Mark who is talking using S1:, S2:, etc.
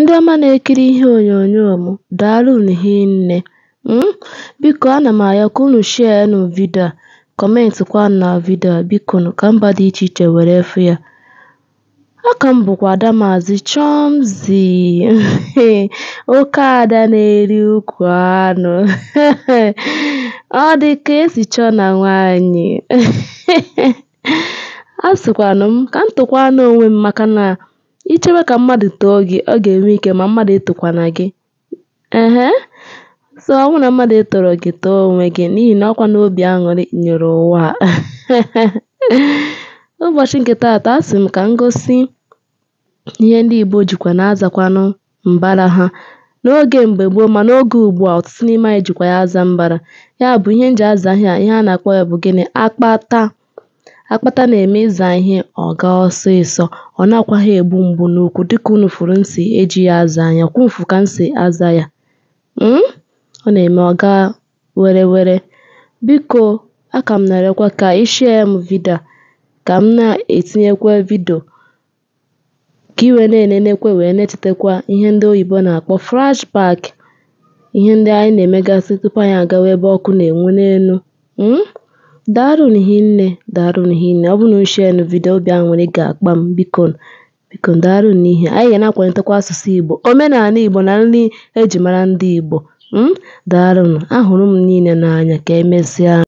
S1: Ndị ọma na-ekiri ihe onyonyo m, daalụnụ hinne. nne hmm? Biko ana m arịọ ka unu shịanụ vidiyo a, na vidio a ka mba dị iche iche were fụ ya. Aka m bụkwa Ada Maazị Chomzy oke na-eri ukwu anụ ọ dị ka esi chọọ na nwaanyị a sịkwanụ m ka m na onwe m maka ichebe ka mmadụ too gị, ọ ga-enwe ike ma mmadụ etokwana gị. Ehee so ọ bụrụ na mmadụ etoro gị too onwe gị n'ihi na ọkwa n'obi aṅụrị nyụrụ ụwa Ụbọchị nke taata a sị m ka m gosi ihe ndị Igbo jikwa na-azakwanụ mbara ha n'oge mgbe gboo ma n'oge ugbua ọtụtụ n'ime anyị jikwa ya aza mbara. Ya bụ ihe m ji aza ihe a, ihe a na-akpọ ya bụ gịnị? Akpata. Akpata na-eme ịza ihe ọ gaa ọ na nakwaghị egbu mgbu n'ukwu dịka unu furu nsi eji ya aza anya, kwumfụ ka si aza ya, hmm? ọ na-eme ọga were were Biko aka m na-arịọkwa ka ị shịa m vidiyo ka m na-etinyekwa vidio ka ị wee na-enenekwa wee na-echetakwa ihe ndị oyibo na-akpọ flashback ihe ndị anyị na-emegasị tupu anyị agawa ebe ọkụ na-enwu n'elu, hmm? nne hinne, Daalụnụ nne ọ bụrụ na ushe shịanụ vidiyo obi aṅụrị ga-akpa m biko bikonu Daalụnụ n'ihi anyị ga na-akwalitekwa asụsụ Igbo, omenala Igbo na nri eji mara ndị Igbo. Hmm? Daalụnụ, ahụrụ m niile n'anya, ka emesịa.